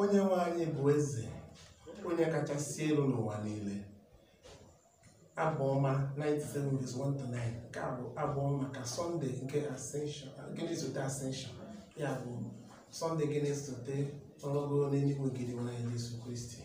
onye nwe anyị bụ eze onye kachasị elu n'ụwa niile abụọma 97:1-9 nke a bụ abụọ ka sọnde nke ascension gịnị sote ascension ya bụ sọnde gịnị sote ọrụgo n'eluigwe gịnị nwere Jesu Kristi